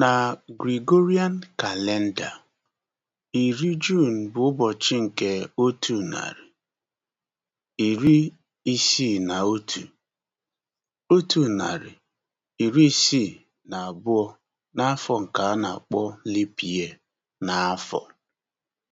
Na Gregorian kalenda, iri June bụ ụbọchị nke otu narị, iri isii na otu, otu narị, iri isii na abụọ n'afọ nke a na-akpọ leap n'afọ.